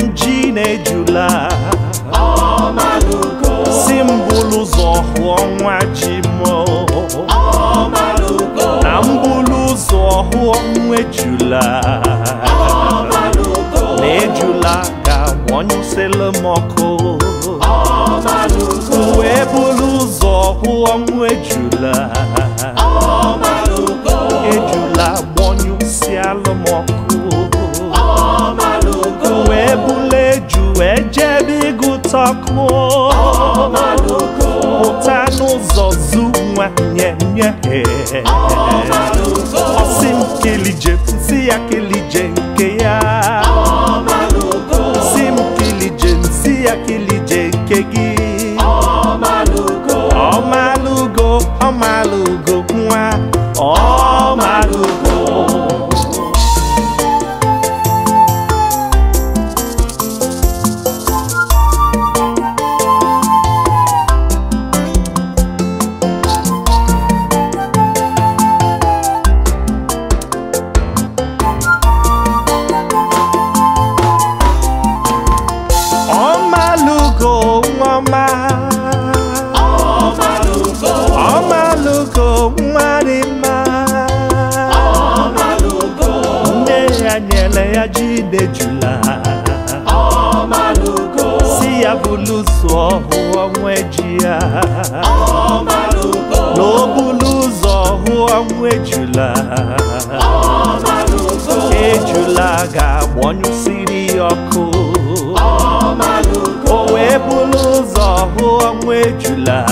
m ji na-ejula si m bụlụ ụzọ hụọ nwa ji m na m bụlụ ụzọ hụọ nwa ejula na ejula ka agbanyụsịlụ m ọkụ szakmot. A malugo. Után uzazú, nye, nye, nye. A malugo. ya. szimkélidje, sziakélidje, kéjá. A malugo. Szimkélidje, ke kégi. A malugo. A malugo, a malugo. ọma ọmalụgo nwa dị mma nne ya nyere ya ji ide jula si ya bụ ụzọ ọhụụ nwe ji ya na o bulu ụzọ hụọ nwe jula ejula ga siri ọkụ ọnwụ ejula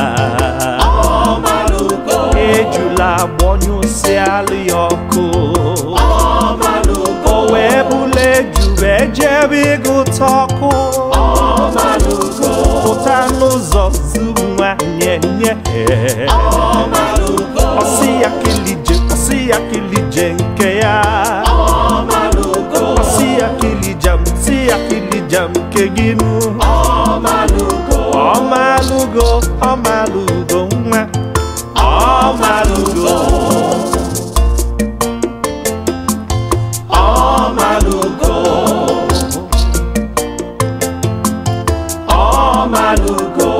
ejula gbọnyụsịalụ ya ọkụ o wee bụla eju wee jebe ịgụta ọkụ pụta n'ụzọ zuru nwa nye nye ọsị ya kilije ọsị ya kilije nke ya ọsị ya kilija ọsị ya kilija nke gị nụ Ọmalugo, ọmalugo nwa Ọmalugo Ọmalugo Ọmalugo